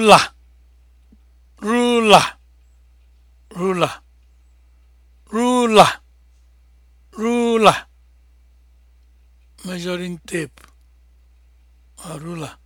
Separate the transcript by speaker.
Speaker 1: ruler ruler ruler measuring tape ah,